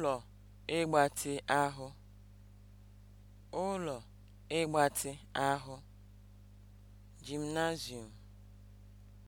ụlọ ịgbatị ahụ ụlọ ịgbatị ahụ (Gymnasium)